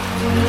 Thank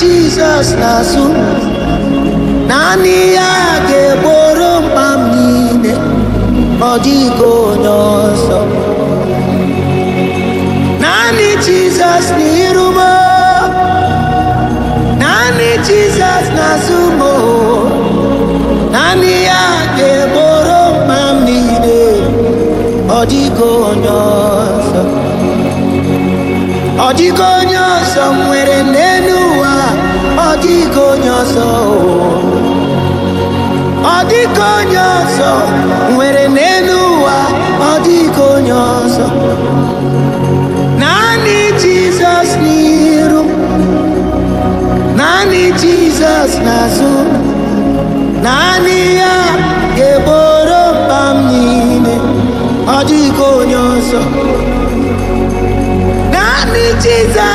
jizọs n'azụ naanị ya ga-egboro mkpa m niile ọ dịghị onye ọzọ naanị jizọs n'iru m naanị jizọs n'azụ m naanị ya ga-egboro mkpa m niile ọ dịghị onye ọzọ ọ dịghị onye ọzọ nwere nne ọ dịghị onye ọzọ ọ dịghị onye ọzọ nwere n'elu ụwa ọ dịghị onye ọzọ naanị jizọs n'iru naanị jizọs n'azụ naanị ya ga-egboro mkpa m ọ dịghị onye ọzọ naanị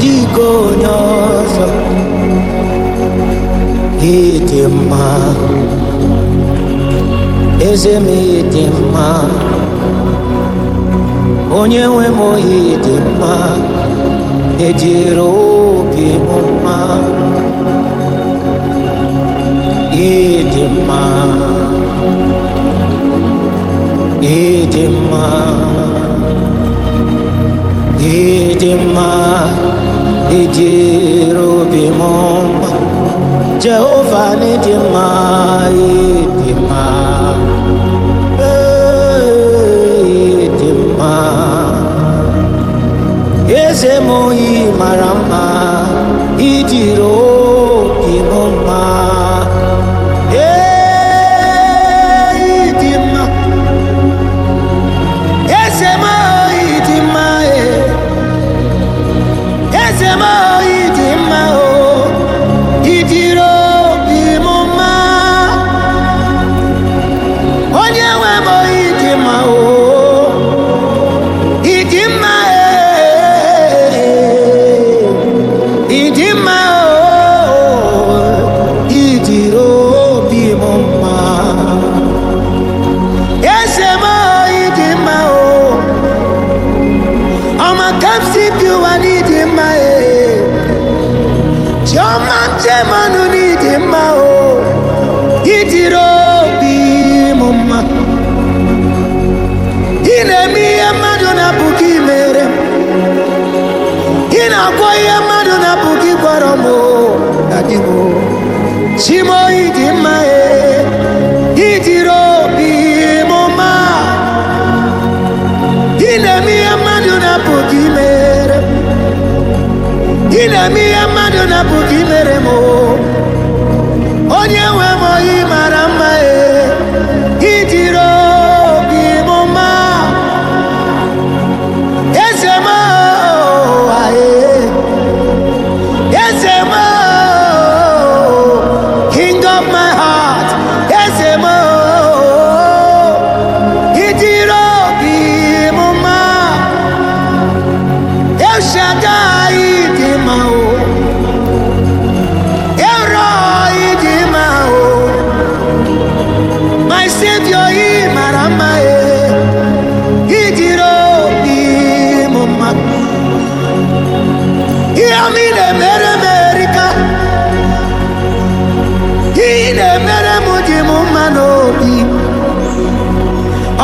dịka onye ọzọ ịdị mma eze m ịdị mma onye nwe m ịdị mma ejiri obi m mma ịdị mma ịdị mma ịdị mma dịịrị obi m mma jehova n'ịdị mma ịdị mma ịdị mma eze m oyi mara mma ci moi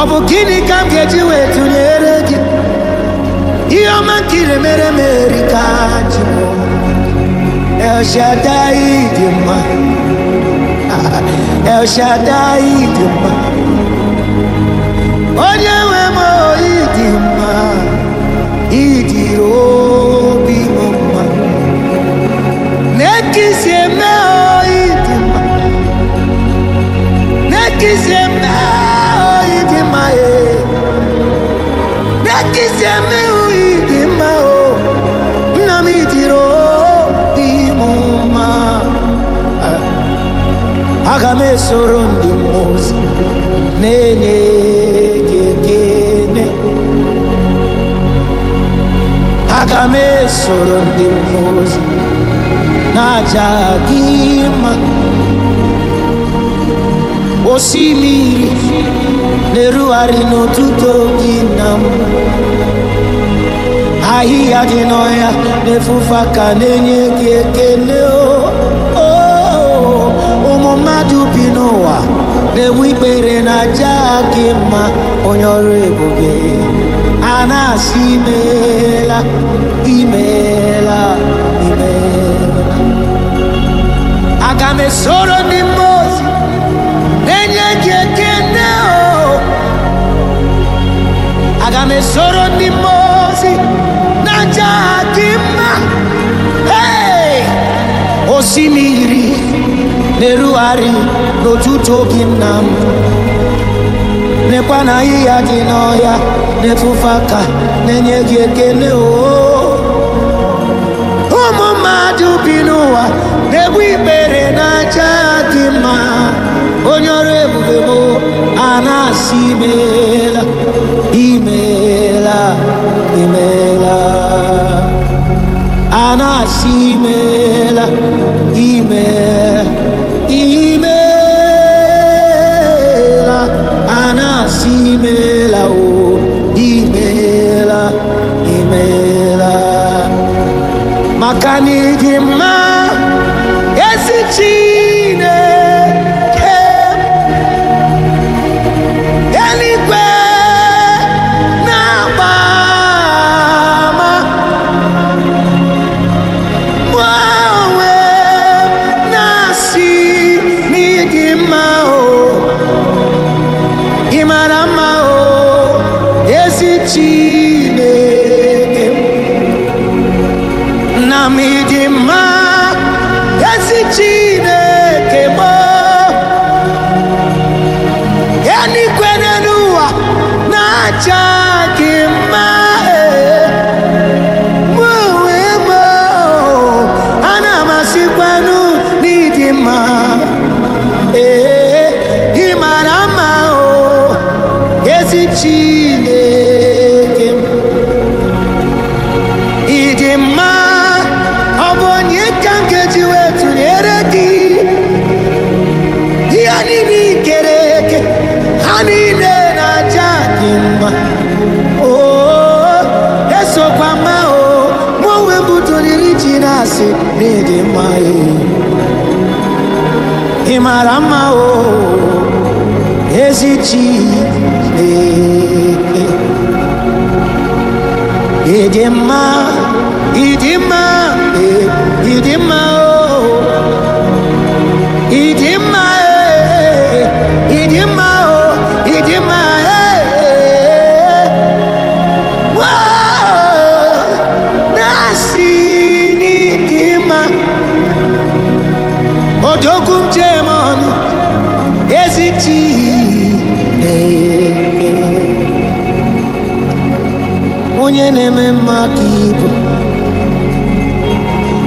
ọ bụ gịnị ka m ga-eji wee tụnyere gị ihe ọma nkiri mere m erika jibụ El Shaddai dị mma El Shaddai dị mma onye nwe m oyi dị mma idiri obi m mma na-ekisi eme oyi dị mma na-ekisi eme ezi eme uyi nna m m aga m ndị mmụọ na-enye gị ekele aga m esoro ndị mmụọ na-aja gị mma osimiri na-erugharị n'ụtụtụ gị na m ahịhịa dị n'ọhịa na-efufe ka na-enye gị ekele ụmụ mmadụ bi n'ụwa na enwe ikpere na aja gị mma onye ọrụ ebube a na-asị imeela imeela imeela aga m esoro ndị na esoro ndị mmụọ na aja ha mma osimiri na-erugharị n'otuto gị nna m dị n'ọhịa na-efufe na-enye gị ekele oo ụmụ mmadụ bi n'ụwa na-egbu ikpere na aja mma onye ọrụ ebube bụ a na-asị maka na-asị na ị mma e. ị mara mma o ezi Chineke ị dị mma ị dị mma ị dị mma Jogumje mano eziti eh, eh. Onye na-eme mma ibu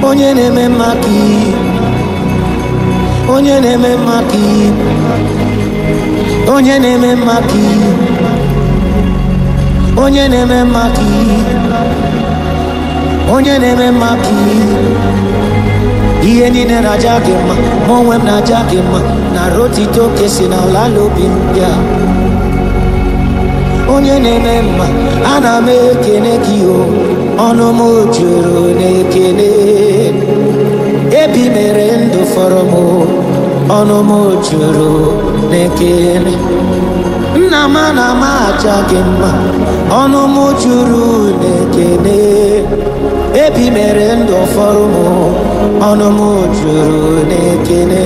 Onye na-eme mma ibu Onye na-eme mma ibu Onye na-eme mma ibu Onye na-eme mma ibu Onye na-eme mma ibu ihe niile na-aja gị mma ma onwe m na-aja gị mma na rotito oke si n'ala ala obi ndị a onye na-eme mma ana m ekene gị o ọnụ m juru na-ekene ebi mere ndụ fọrọ m ọnụ m juru na-ekene nna m ana m aja gị mma ọnụ m juru na-ekene mere ndụ ụfọdụ m ọnụ m juru n'ekele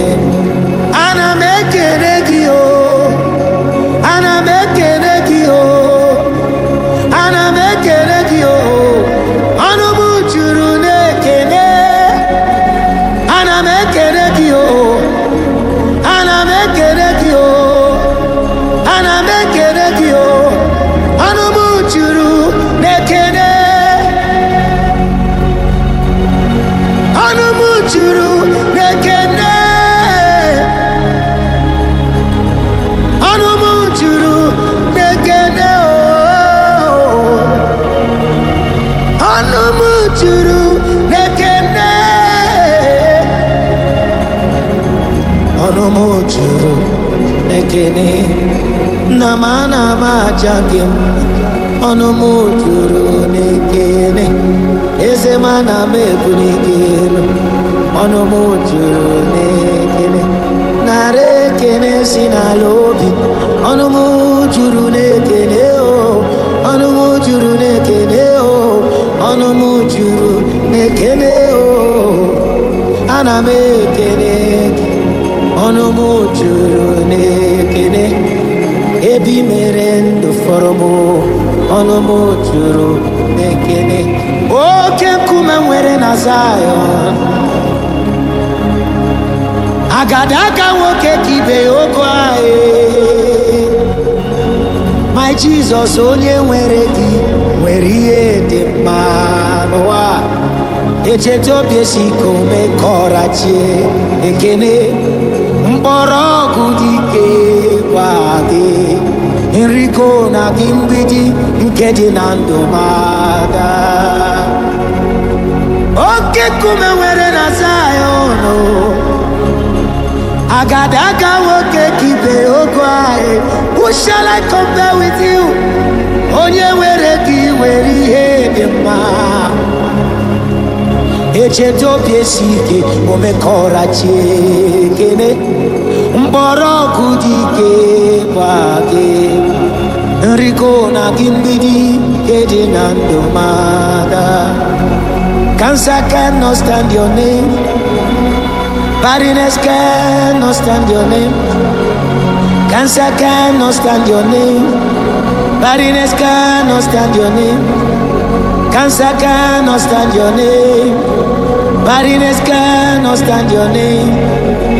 aja gị ọnụ m juru n'ekele eze m ana m ebu n'ekele ọnụ m juru n'ekene narị ekele si n'ala obi ọnụ m juru n'ekene o ọnụ m juru n'ekene o ọnụ m juru n'ekene o ana m ekele ọnụ m juru n'ekele ebe mere ndụ fọrọ m ọnụ m jụrụ ekene oke nkume nwere na Zayọn agadaga nwoke ka ibe ogo anyị my Jizọs onye nwere gị nwere ihe dị mma n'ụwa echeta obi esi ike ome ka ọra ekene dị ike kwade nriko na gị mgbidi nke dị na ndụ mada oke kume nwere na zayọnụ agadaga nwoke kibe ogo anyị who shall I compare with you onye were ka ị nwere ihe dị mma echeta obi esi ike omekọra chi ekene mgbọrọgwụ dị ike kebake nriko na gị mgbidi nke dị na ndụ mada cancer cannot stand your name barrenness cannot stand your name cancer cannot stand your name barrenness cannot stand your name cancer cannot stand your name barrenness cannot stand your name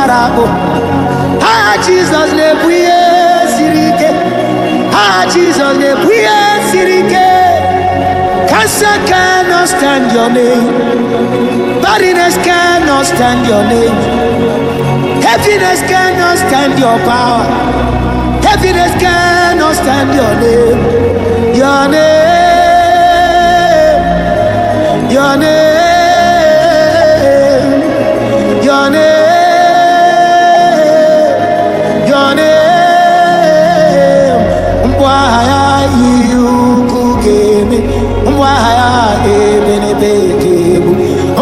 gbara akpụ aha jizọs na-ebu ihe siri ike ha jizọs na-ebu ihe siri ike cancer not stand your name can not stand your name heaviness not stand your power heaviness not stand your name your name your name bekee bụ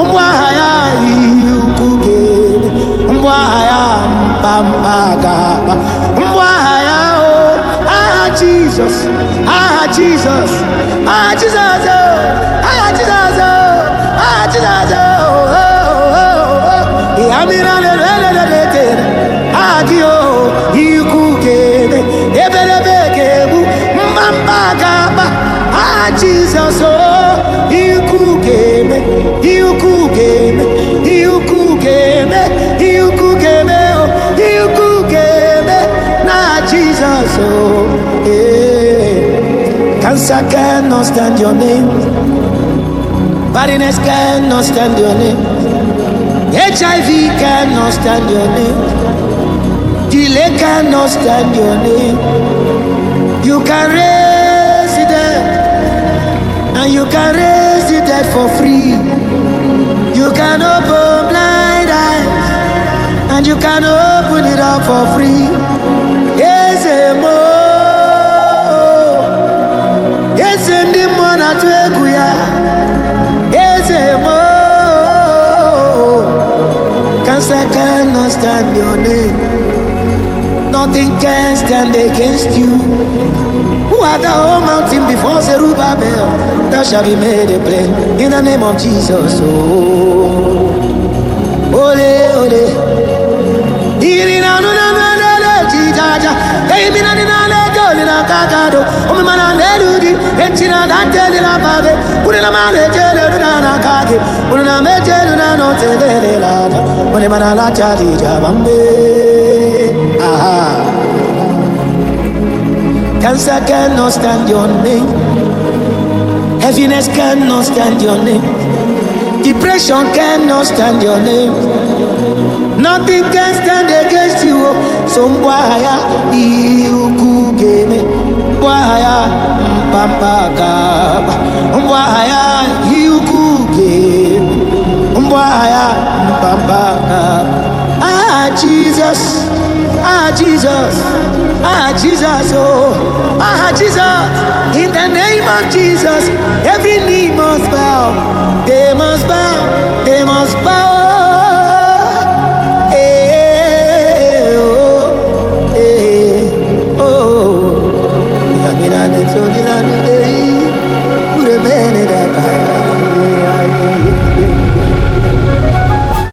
mgbagha ya ihe ukwu ga-ere mgbagha ya mkpamkpa ga-akpa mgbagha ya o aha jizọs aha jizọs aha jizọs aha jizọs aha jizọs ya mmiri alelelelete aha gị o ikwu ga-ere ebelebe ga-egbu mkpamkpa ga-akpa aha jizọs o Yes, I cannot stand your name. Badness cannot stand your name. HIV cannot stand your name. Delay cannot stand your name. You can raise the dead, and you can raise the dead for free. You can open blind eyes, and you can open it up for free. eze ndị mmụọ na-atụ egwu ya eze mo cancer cannot stand your name nothing can stand against you who are the whole mountain before Zerubbabel thou shalt be made a plain in the name of Jesus oh ole ole iri na anụ na mmadụ ji jaja eyimina dị n'alaeje olila aka aka dụ omume na n'elu dị echina na ntị elila aba gị ma na-eche elu na na aka gị kwuru na ma eche na n'otu vele elila ada onye mana alacha dị ije aba aha Cancer cannot stand your name. Heaviness cannot stand your name. Depression cannot stand your name. nothing can stand against you oh. so mgbe agha ya ihe ukwu ga-eme mgbe agha ya mpampa ga ihe ukwu ga-eme mgbe agha ya mpampa ga ah Jesus ah Jesus ah Jesus oh ah Jesus in the name of jesus every knee must bow they must bow